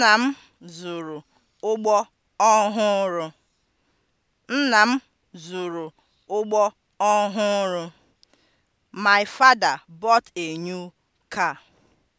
Nna m zụrụ ụgbọ ọhụrụ. Nna m zụrụ ụgbọ ọhụrụ. My father bought a new car.